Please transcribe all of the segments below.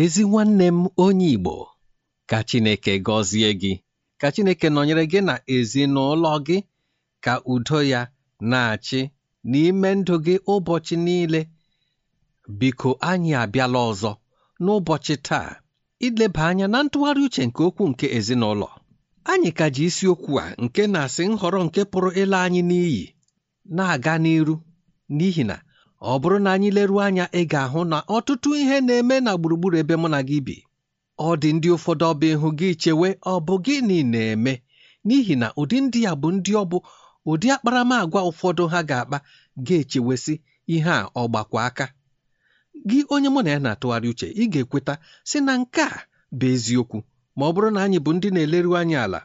ezi nwanne m onye Igbo ka Chineke gọzie gị ka Chineke nọnyere gị na ezinụlọ gị ka udo ya na-achị n'ime ndụ gị ụbọchị niile biko anyị abịala ọzọ n'ụbọchị taa ileba anya na ntụgharị uche nke okwu nke ezinụlọ anyị ka ji isiokwu a nke na-asị nhọrọ nke pụrụ ịla anyị n'iyi na-aga n'iru n'ihi na ọ bụrụ na anyị leruo anya ị ga-ahụ na ọtụtụ ihe na-eme na gburugburu ebe mụ na gị bi ọ dị ndị ụfọdụ ọba ịhụ gị chewe ọ bụ gịnị na-eme n'ihi na ụdị ndị ya bụ ndị ọ bụ ụdị akparamàgwa ụfọdụ ha ga-akpa ga-echewesị ihe a ọ gbakwa aka gị onye mụ na ya na-atụgharị uche ị ga-ekweta sị na nke a bụ eziokwu ma ọ bụrụ na anyị bụ ndị na-eleru anyị ala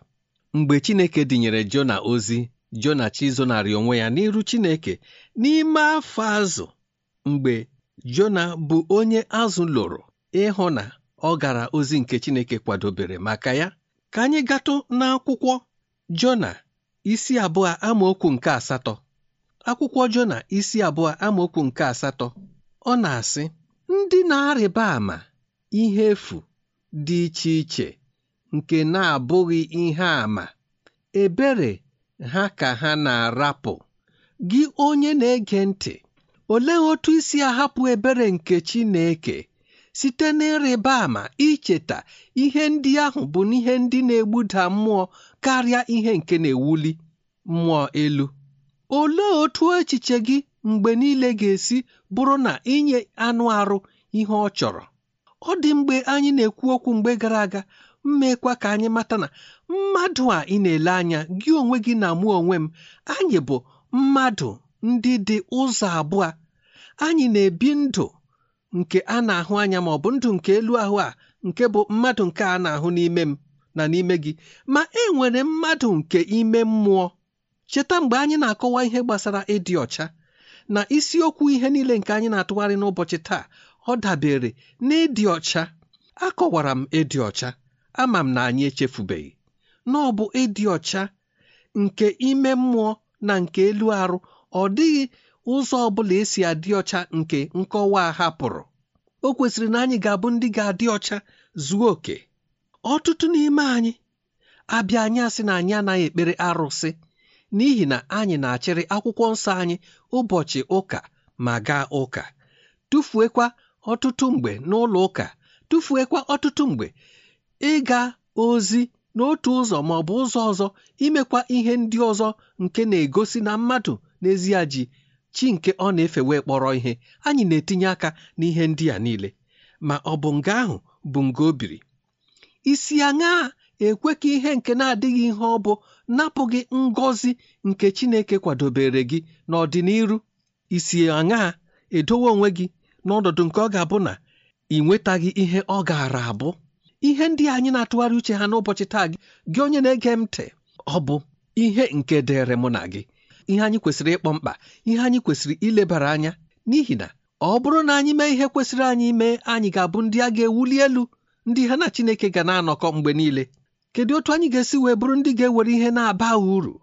mgbe Chineke dịnyere Jona ozi jona chizonarị onwe ya n'iru chineke n'ime afọ azụ mgbe jona bụ onye azụ lụrụ ịhụ na ọ gara ozi nke chineke kwadobere maka ya ka anyị gatụ n'akwụkwọ jona isi abụọ amaokwu nke asatọ akwụkwọ jona isi abụọ amaokwu nke asatọ ọ na-asị ndị na-arịba ama ihe efu dị iche iche nke na-abụghị ihe àmà ebere ha ka ha na-arapụ gị onye na-ege ntị ole otu isi ahapụ ebere nke Chineke site n'ịrịba ama icheta ihe ndị ahụ bụ n'ihe ndị na-egbuda mmụọ karịa ihe nke na-ewuli mmụọ elu olee otu echiche gị mgbe niile ga-esi bụrụ na inye anụ arụ ihe ọ chọrọ ọ dị mgbe anyị na-ekwu okwu mgbe gara aga mmekwa ka anyị mata na mmadụ a ị na-ele anya gị onwe gị na mụ onwe m anyị bụ mmadụ ndị dị ụzọ abụọ anyị na-ebi ndụ nke a na-ahụ anya ma ọ bụ ndụ nke elu ahụ a nke bụ mmadụ nke a na-ahụ n'ime m na n'ime gị ma e nwere mmadụ nke ime mmụọ cheta mgbe anyị na-akọwa ihe gbasara ịdị ọcha na isiokwu ihe niile nke anyị na-atụgharị n'ụbọchị taa ọ dabere n'ịdị ọcha akọwara m ịdị ọcha ama m na anyị echefubeghị na ọ bụ ịdị ọcha nke ime mmụọ na nke elu arụ ọ dịghị ụzọ ọ bụla esi adị ọcha nke nkọwa a hapụrụ o kwesịrị na anyị ga-abụ ndị ga-adị ọcha zuo oke ọtụtụ n'ime anyị abịa anyị asị na anyị anaghị ekpere arụsị n'ihi na anyị na-achịrị akwụkwọ nsọ anyị ụbọchị ụka ma gaa ụka tụfuekwa ọtụtụ mgbe n'ụlọ ụka tụfuekwa ọtụtụ mgbe ịga ozi n'otu ụzọ ma ọ bụ ụzọ ọzọ imekwa ihe ndị ọzọ nke na-egosi na mmadụ n'ezie ji chi nke ọ na-efe wee kpọrọ ihe anyị na-etinye aka n'ihe ndị a niile ma ọ bụ nga ahụ bụ nga o biri isi aṅa ekwe ka ihe nke na-adịghị ihe ọ bụ napụ gị ngọzi nke Chineke kwadobere gị n'ọdịniru isi aṅa edowe onwe gị n'ọnọdụ nke ọ ga-abụ na ị nwetaghị ihe ọ gaara abụ ihe ndị anyị na-atụgharị uche ha n'ụbọchị taa gị gị onye na-ege m ntị ọ bụ ihe nke dịrị mụ na gị ihe anyị kwesịrị ịkpọ mkpa ihe anyị kwesịrị ilebara anya n'ihi na ọ bụrụ na anyị mee ihe kwesịrị anyị mee anyị ga-abụ ndị a ga-ewuli elu ndị ha na Chineke ga na-anọkọ mgbe niile kedu otu anyị ga-esi wee bụrụ ndị ga-ewere ihe na-aba uru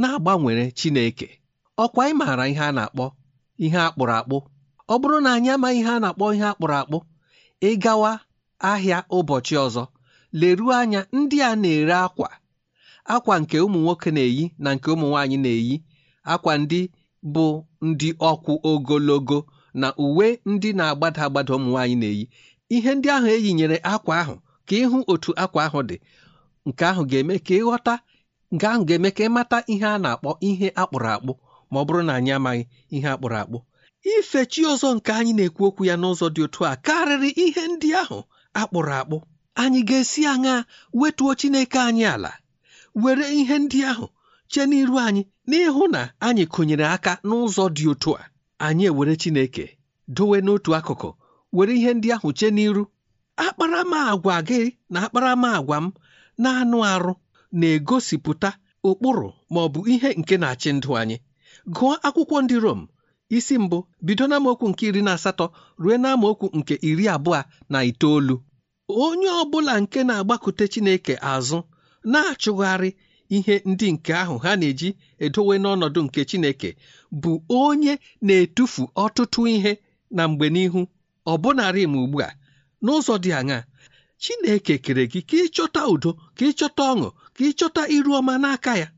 na-agbanwere Chineke ọkwa ị maara ihe a na-akpọ ihe akpụrụ akpụ ọ bụrụ na anyị amaghị ihe a na-akpọ ihe akpụrụ akpụ ịgawa ahịa ụbọchị ọzọ leruo anya ndị a na-ere akwa akwa nke ụmụ nwoke na-eyi na nke ụmụ nwaanyị na-eyi akwa ndị bụ ndị ọkwụ ogologo na uwe ndị na-agbada agbada ụmụ nwaanyị na-eyi ihe ndị ahụ eyinyere akwa ahụ ka ịhụ otu akwa ahụ dị nke ahụ ga-eme ka ịghọta nke ahụ ga-eme ka ịmata ihe a na-akpọ ihe akpụrụ akpụ ma ọ bụrụ na anyị amaghị ihe akpụrụ akpụ ife chi ọzọ nke anyị na-ekwu okwu ya n'ụzọ dị otu a karịrị ihe ndị ahụ akpụrụ akpụ anyị ga-esi aṅa wetuo chineke anyị ala were ihe ndị ahụ chee n'iru anyị n'ịhụ na anyị kụnyere aka n'ụzọ dị otu a anyị ewere chineke dowe n'otu akụkụ were ihe ndị ahụ che n'iru akparamagwa gị na agwa m na anụ arụ na-egosipụta ụkpụrụ ma bụ ihe nke na-achị ndụ anyị gụọ akwụkwọ ndị Rom isi mbụ bido n'amaokwu nke iri na asatọ ruo n'amaokwu nke iri abụọ na itoolu onye ọ bụla nke na-agbakute Chineke azụ na-achụgharị ihe ndị nke ahụ ha na-eji edowe n'ọnọdụ nke Chineke bụ onye na-etufu ọtụtụ ihe na mgbe n'ihu ọ bụnarị m ugbu a n'ụzọ dị aṅaa Chineke kere gị ka ịchọta udo ka ịchọta ọṅụ ka ịchọta iru ọma n'aka ya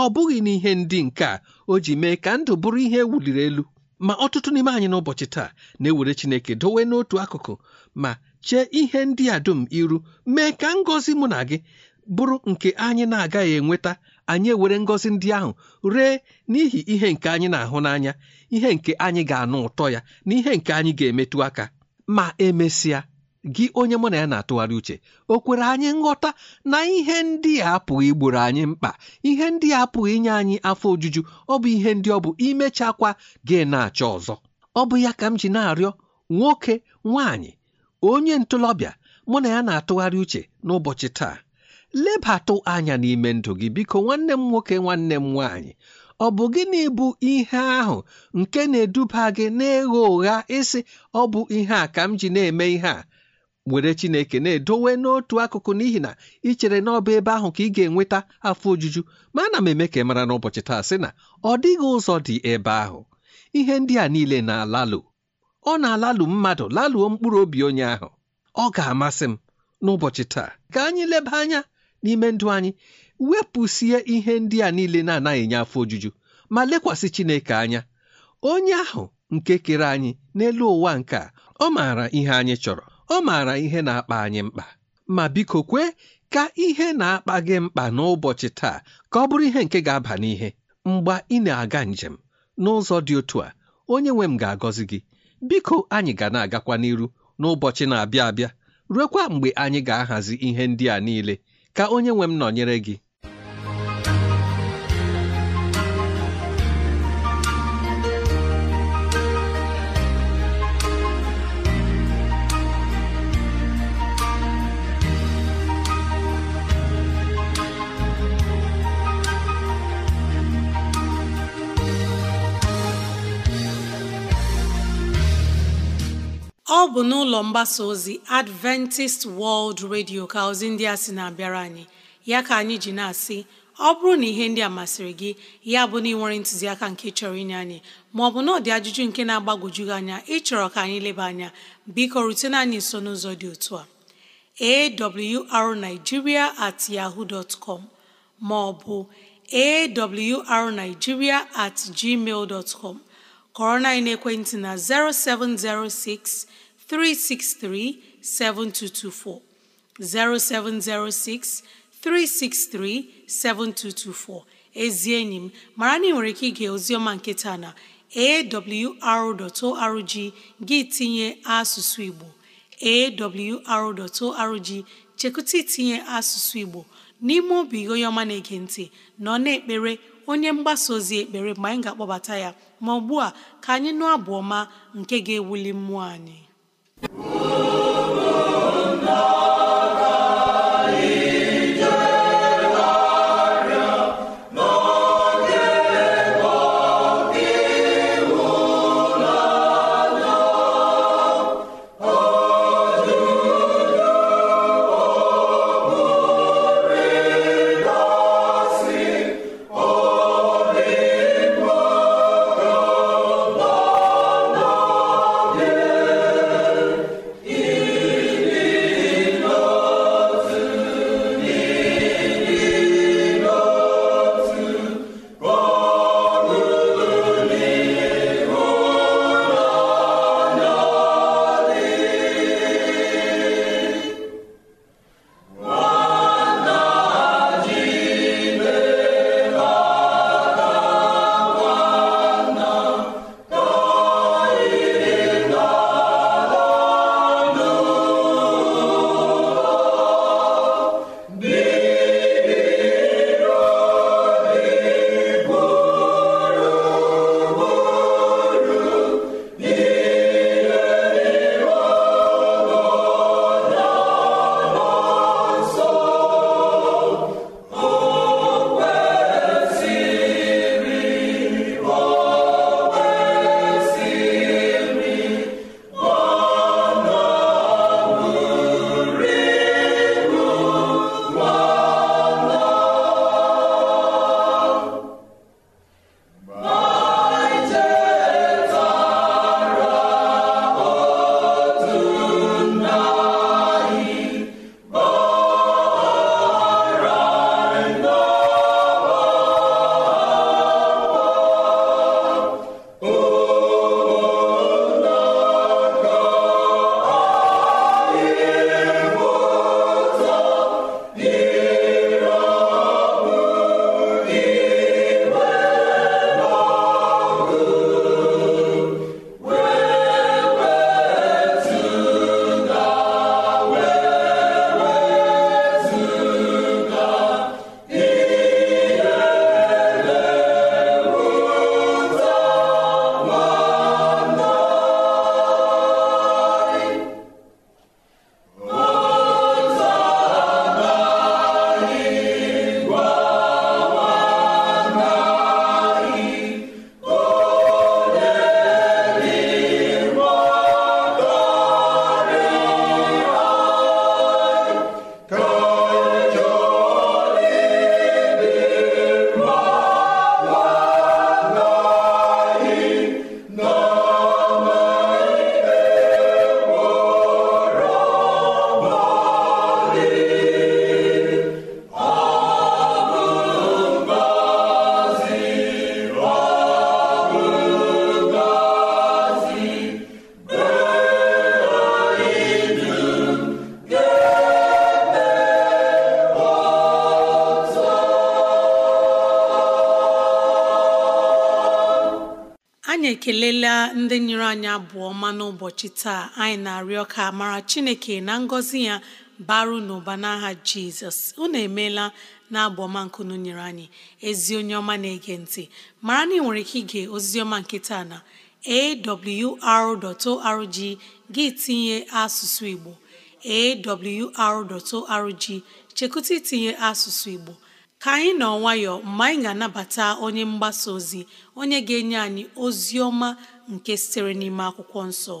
ọ bụghị n'ihe ndị nke a o ji mee ka ndụ bụrụ ihe e wuliri elu ma ọtụtụ n'ime anyị n'ụbọchị taa na-ewere Chineke dowe n'otu akụkụ ma chee ihe ndị a dum iru mee ka ngọzi mụ na gị bụrụ nke anyị na-agaghị enweta anyị ewere ngọzi ndị ahụ ree n'ihi ihe nke anyị na-ahụ n'anya ihe nke anyị ga-anụ ụtọ ya na ihe nke anyị ga-emetụ aka ma emesịa gị onye mụ na ya na-atụgharị uche o kwere anyị nghọta na ihe ndị a apụghị igboro anyị mkpa ihe ndị a apụghị inye anyị afọ ojuju ọ bụ ihe ndị ọ bụ imechakwa gị na-achọ ọzọ ọ bụ ya ka m ji na-arịọ nwoke nwaanyị onye ntolọbịa mụ na ya na-atụgharị uche n'ụbọchị taa lebatụ anya n'ime ndụ gị biko nwanne m nwoke nwanne m nwaanyị ọ bụ gịnị bụ ihe ahụ nke na-eduba gị n'ịgha ụgha ịsị ọ bụ ihe a ka m ji na-eme ihe a were chineke na-edowe n'otu akụkụ n'ihi na ị chere n'ọba ebe ahụ ka ị ga-enweta afọ ojuju ma ana m eme ka ị mara n'ụbọchị taa sị na ọ dịghị ụzọ dị ebe ahụ ihe ndị a niile na-alalụ ọ na-alalụ mmadụ lalụọ mkpụrụ obi onye ahụ ọ ga-amasị m n'ụbọchị taa ka anyị leba anya n'ime ndụ anyị wepụsie ihe ndị a niile na-anaghị enye afọ ojuju ma lekwasị chineke anya onye ahụ nke kere anyị n'elu ụwa nke a ọ maara ihe anyị chọrọ ọ maara ihe na-akpa anyị mkpa ma biko kwe ka ihe na-akpa gị mkpa n'ụbọchị taa ka ọ bụrụ ihe nke ga-aba n'ihe mgbe ị na-aga njem n'ụzọ dị otu a onye nwe m ga-agọzi gị biko anyị ga na-agakwa n'iru n'ụbọchị na-abịa abịa ruekwa mgbe anyị ga-ahazi ihe ndị a niile ka onye nwe m nọnyere gị bụ n'ụlọ mgbasa ozi Adventist World Radio ka ozi ndị a sị na-abịara anyị ya ka anyị ji na-asị ọ bụrụ na ihe ndị a masịrị gị ya bụ na ịnwere ntụziaka nke chọrọ inye anyị maọbụ na ọ ajụjụ nke na-agbagwoju gị anya ịchọrọ ka anyị leba anya biko rutena anyị nso n'ụzọ dị otu a arigiria at yahoo dot com maọbụ arigiria at gmail dot com kọrọ na ekwentị na 0706 363 7224 0706 363 7224 ezi enyi m mara na ị nwere ike ige ozioma nke taa na awr.org gị tinye asụsụ Igbo awr.org chekụta itinye asụsụ Igbo n'ime obi onye ọma na-ege ntị nọ na-ekpere onye mgbasa ozi ekpere mgbe anyị ga-akpọbata ya ma ugbu a ka anyị nụ abụ nke ga-ewuli mmụọ anyị Woo! ekelela ndị nyere anyị abụọ ọma n'ụbọchị taa anyị na-arịọ ka mara chineke na ngọzi ya baru n'ụba n'aha jizọs unu emeela na abụọma nkunu nyere anyị ezi onye ọma na-ege ntị mara na ị nwere ike ige oziọma nke taa na awr.org gị tinye asụsụ igbo awr.org chekụta itinye asụsụ igbo ka anyị nọ nwayọọ mgbe anyị ga-anabata onye mgbasa ozi onye ga-enye anyị ozi ọma nke sitere n'ime akwụkwọ nsọ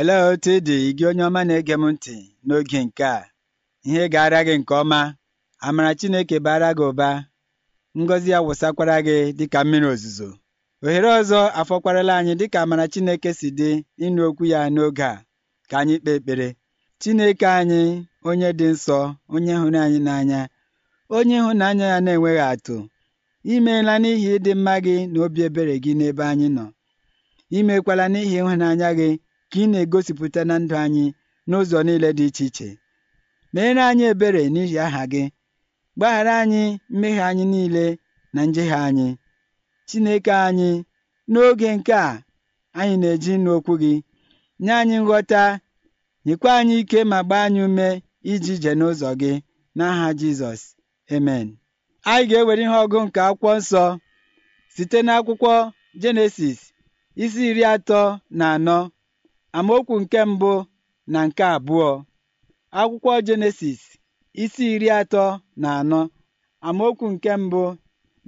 olee otu ị dị gị onye ọma na-ege m ntị n'oge nke a ihe ga gara gị nke ọma amara Chineke bara gị ụba ngọzi ya wụsakwara gị dịka mmiri ozuzo ohere ọzọ afọkwarala anyị dịka amara Chineke si dị ịnụ okwu ya n'oge a ka anyị kpee ekpere Chineke anyị onye dị nsọ onye hụrụ anyị n'anya onye ịhụnanya ya na-enweghị atụ imeela n'ihi ịdị mma gị na obi ebere gị n'ebe anyị nọ imekwala n'ihi ịhụnanya gị ka ị na-egosipụta na ndụ anyị n'ụzọ niile dị iche iche meere anyị ebere n'ihi aha gị Gbaghara anyị mmehie anyị niile na njehie anyị, Chineke anyị, n'oge nke a anyị na-eji n'okwu gị. Nye anyị nghọta, nyekwa anyị ike ma gbaa anyị ume iji je n'ụzọ gị n'aha Jizọs. Amen. Anyị ga-ewere ihe ọgụ nke akwụkwọ nsọ site n'akwụkwọ Jenesis isi iri atọ na anọ amaokwu nke mbụ na nke abụọ. Akwụkwọ Jenesis isi iri atọ na anọ amaokwu nke mbụ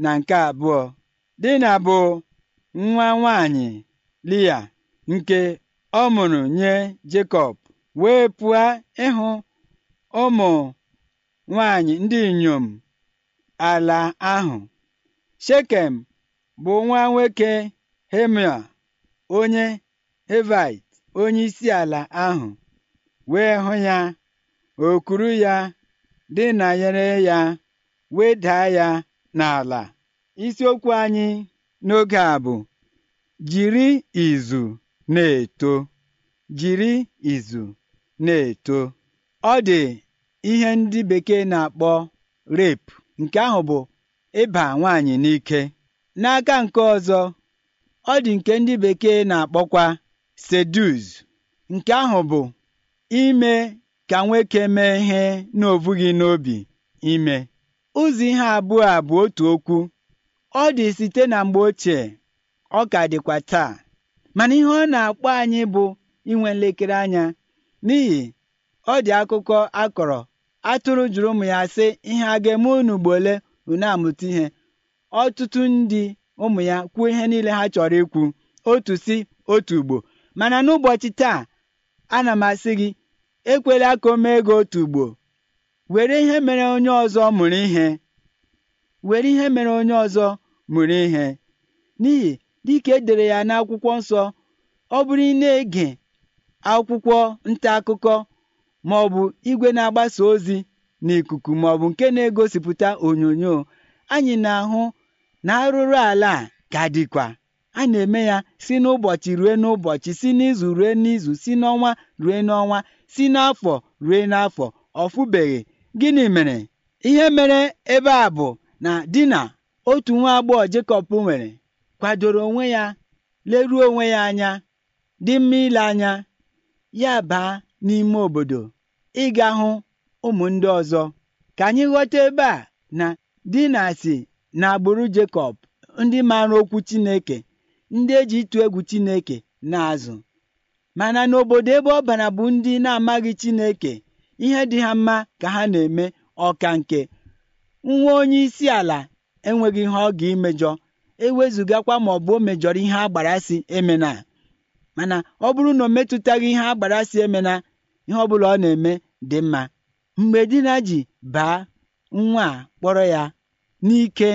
na nke abụọ dina bụ nwa nwanyị lia nke ọ mụrụ nye Jekọb wee pụọ ịhụ ụmụ nwanyị ndị inyom ala ahụ shekem bụ nwa nwoke hemia onye hevit isi ala ahụ wee hụ ya o kuru ya dị na nyere ya wedaa ya n'ala isiokwu anyị n'oge a bụ jiri izu na-eto jiri izu na-eto ọ dị ihe ndị bekee na-akpọ rape nke ahụ bụ ịba nwaanyị n'ike n'aka nke ọzọ ọ dị nke ndị bekee na-akpọkwa seduz nke ahụ bụ ime ka nwoke mee ihe na gị n'obi ime ụzọ ihe abụọ a bụ otu okwu ọ dị site na mgbe ochie ọ ka dịkwa taa mana ihe ọ na-akpọ anyị bụ inwe nlekere anya n'ihi ọ dị akụkọ akọrọ atụrụ jụrụ ụmụ ya sị ihe a ga-eme unu gbo ole unu amụta ihe ọtụtụ ndị ụmụ ya kwuo ihe niile ha chọrọ ikwu otu si otu ugbo mana n'ụbọchị taa ana m asị gị ekwela ka o mee gị otu ugbo were ihe mere onye ọzọ mụrụ ihe were ihe mere onye ọzọ mụrụ ihe n'ihi dịka edere ya n'akwụkwọ nsọ ọ bụrụ ị na-ege akwụkwọ nta akụkọ ma ọ bụ igwe na-agbasa ozi n'ikuku ma ọ bụ nke na-egosipụta onyonyo anyị na-ahụ na arụrụ ala a ka dịkwa a na-eme ya si n'ụbọchị rue n'ụbọchị si n'izu rue n'izu si n'ọnwa rue n'ọnwa si n'afọ rue n'afọ ọfụbeghị gịnị mere ihe mere ebe a bụ na di na otu nwa agbọghọ Jekọb nwere kwadoro onwe ya leruo onwe ya anya dị mma ile anya ya baa n'ime obodo ịga hụ ụmụ ndị ọzọ ka anyị ghọta ebe a na di na si na agbụrụ Jekọb ndị maara okwu Chineke ndị eji ịtụ egwu Chineke na-azụ mana n'obodo ebe ọ bara bụ ndị na-amaghị Chineke ihe dị ha mma ka ha na-eme ọka nke nwa onye isi ala enweghị ihe ọ ga emejọ ewezugakwa ma ọ bụ o mejọrọ ihe agbarasị emena mana ọ bụrụ na o metụtaghị ihe agbarasị emena ihe ọ bụla ọ na-eme dị mma mgbe dina ji baa nwa a kpọrọ ya n'ike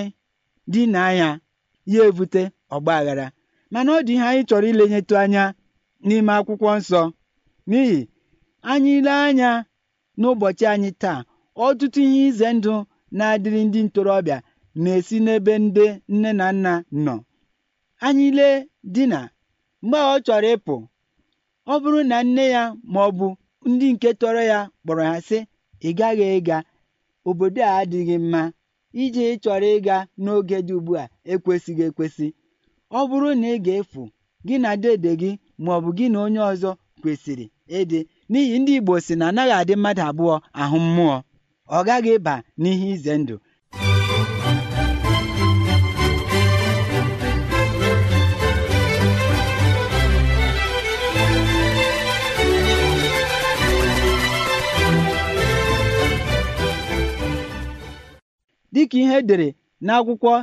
di ya ebute evute aghara mana ọ dị ihe anyị chọrọ ilenyetụ anya n'ime akwụkwọ nsọ n'ihi anyị ile anya n'ụbọchị anyị taa ọtụtụ ihe ize ndụ na-adịrị ndị ntorobịa na-esi n'ebe ndị nne na nna nọ anyị lee dina, mgbe ọ chọrọ ịpụ ọ bụrụ na nne ya ma ọ bụ ndị nke tọrọ ya kpọrọ ha sị ị gaghị ịga obodo a adịghị mma iji chọrọ ịga n'oge dị ugbu a ekwesịghị ekwesị ọ bụrụ na ị ga-efu gị na dede gị ma ọ bụ gị na onye ọzọ kwesịrị ịdị n'ihi ndị Igbo si na anaghị adị mmadụ abụọ ahụ mmụọ ọ gaghị ịba n'ihe ize ndụ dịka ihe edere n'akwụkwọ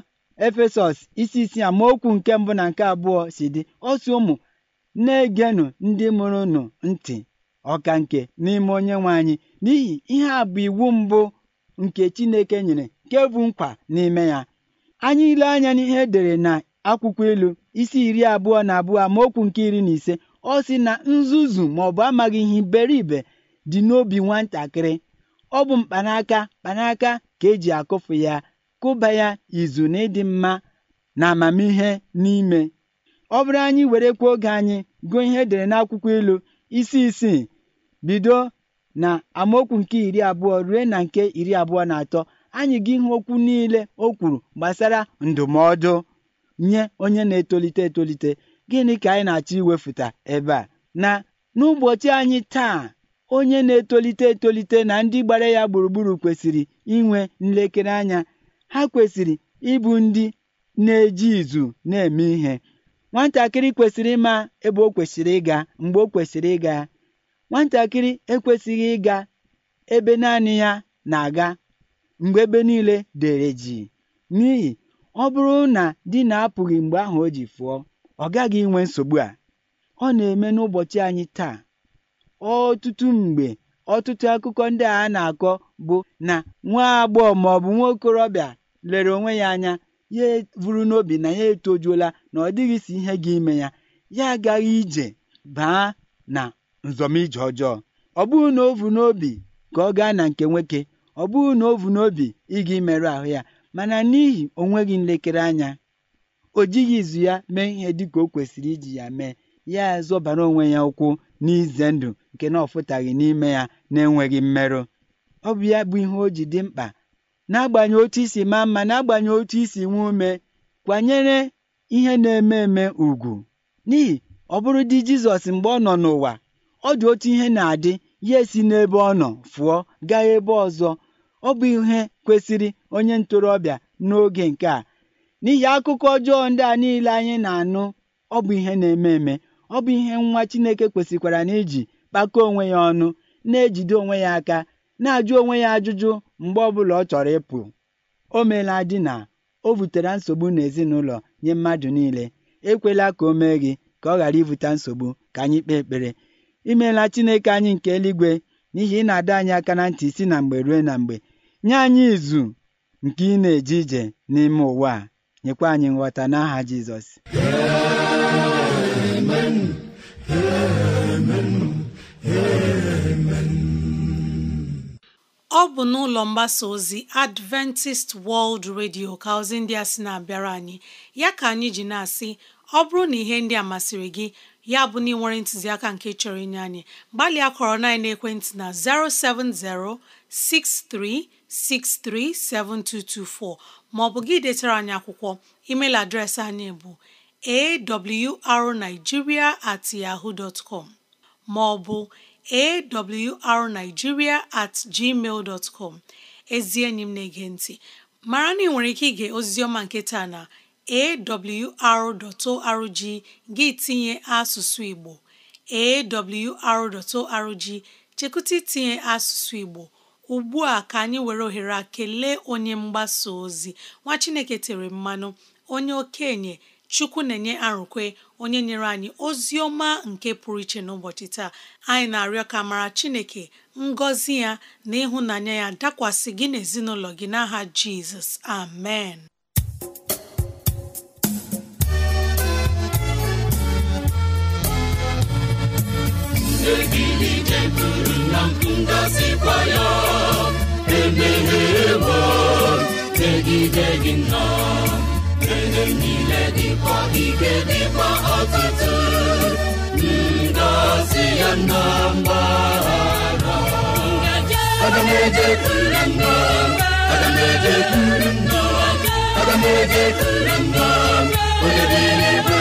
efesọs isi isi ma okwu nke mbụ na nke abụọ si dị ọsụ ụmụ na-egenụ ndị mụrụ nụ ntị ọka nke n'ime onye nwe anyị n'ihi ihe a bụ iwu mbụ nke Chineke nyere nke bụ nkwa n'ime ya anyị ile anya n'ihe edere na akwụkwọ ilu isi iri abụọ na abụọ ma okwu nke iri na ise ọ si na nzuzu ma ọ bụ amaghị ihe iberibe dị n'obi nwatakịrị ọ bụ mkpanaka mkpanaka ka eji akụfu ya kụba ya izu na ịdị mma na amamihe n'ime ọ bụrụ anyị were kwuo oge anyị gụọ ihe edere n'akwụkwọ ilu isi isii bido na amaokwu nke iri abụọ ruo na nke iri abụọ na atọ anyị gị ihe okwu niile o kwuru gbasara ndụmọdụ nye onye na-etolite etolite gịnị ka anyị na-achọ iwefụta ebe a na n'ụbọchị anyị taa onye na-etolite etolite na ndị gbara ya gburugburu kwesịrị inwe nlekere anya ha kwesịrị ịbụ ndị na-eji izu na-eme ihe nwatakịrị kwesịrị ịma ebe o kwesịrị ịga mgbe o kwesịrị ịga nwatakịrị ekwesịghị ịga ebe naanị ya na-aga mgbe ebe niile dere ji n'ihi ọ bụrụ na di na-apụghị mgbe ahụ o ji fụọ ọ gaghị inwe nsogbu a ọ na-eme n'ụbọchị anyị taa ọtụtụ mgbe ọtụtụ akụkọ ndị a na-akọ bụ na nwa agbọghọ maọbụ bụ nwa okorobịa lere onwe ya anya ya eburu n'obi na ya etojuola na ọ dịghị si ihe gị ime ya ya agaghị ije baa na nzọmije ọjọọ ọ bụghị na ovu n'obi ka ọ gaa na nke nwoke ọ bụghị na ovu n'obi ịga imerụ ahụ ya mana n'ihi onweghị nlekere anya o jighị izu ya mee ihe ka o kwesịrị iji ya mee ya zọbara onwe ya ụkwụ n'ize ndụ nke na ọfụtaghị n'ime ya na-enweghị mmerụ ọ bụ ya bụ ihe o ji dị mkpa n'agbanyeghị otu isi maa mma na-agbanye otu isi nwe ume kwanyere ihe na-eme eme ugwu n'ihi ọ bụrụ di Jizọs mgbe ọ nọ n'ụwa ọ dị otu ihe na-adị ya esi n'ebe ọ nọ fụọ gaa ebe ọzọ ọ bụ ihe kwesịrị onye ntorobịa n'oge nke a n'ihi akụkọ ọjọọ ndị a niile anyị na-anụ ọ bụ ihe na-eme eme ọ bụ ihe nwa Chineke kwesịkwara na iji kpakọọ onwe ya ọnụ na-ejide onwe ya aka na-ajụ onwe ya ajụjụ mgbe ọbụla ọ chọrọ ịpụ o meela di na o butere nsogbu n'ezinụlọ nye mmadụ niile ekwela ka o mee gị ka ọ ghara ibute nsogbu ka anyị kpee ekpere imeela Chineke anyị nke eluigwe n'ihi ị na-adọ anyị aka na ntị isi na mgbe ruo na mgbe nye anyị izu nke ị na-eje ije n'ime ụwa a nyekwa anyị nghọta n'aha Jizọs ọ bụ n'ụlọ mgbasa ozi Adventist World Radio ka ozi ndị a sị na-abịara anyị ya ka anyị ji na-asị ọ bụrụ na ihe ndị a masịrị gị ya bụ na ị nwere ntụziaka nke chọrọ inye anyị gbalịa kọrọ na ekwentị na 07063637224 maọbụ gị detara anyị akwụkwọ email adreesị anyị bụ awrnigeria at yahoo dot maọbụ arnigiria at gmail com ezi enyi m na-ege ntị mara na ị nwere ike ige oziziọma nke taa na awr.org gị tinye asụsụ Igbo awr.org chekụta itinye asụsụ Igbo ugbu a ka anyị were ohere a kelee onye mgbasa ozi nwa Chineke tere mmanụ onye okenye chukwu na-enye arụkwe onye nyere anyị ozi ọma nke pụrụ iche n'ụbọchị taa anyị na-arịọ ka mara chineke ngọzi ya na ịhụnanya ya dakwasị gị n'ezinụlọ gị n'aha jizọs amen megide gị nnọọ mgbe niile dịkwa ike dịkwa ọtụtụ ngọzi ya na mgbahara aga m ejekwuru nna aga m ejekwuru nna aga m ebe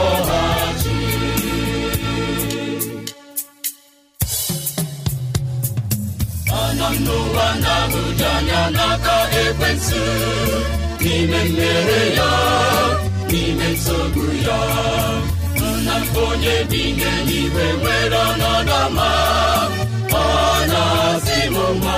na abuja anya n'aka ekwensụ n'ime mmehie ya n'ime nsogbu ya nna onye dị ihe n'igwe nwere ọnọdụ ma ọ na-asị m mma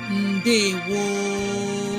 ndewo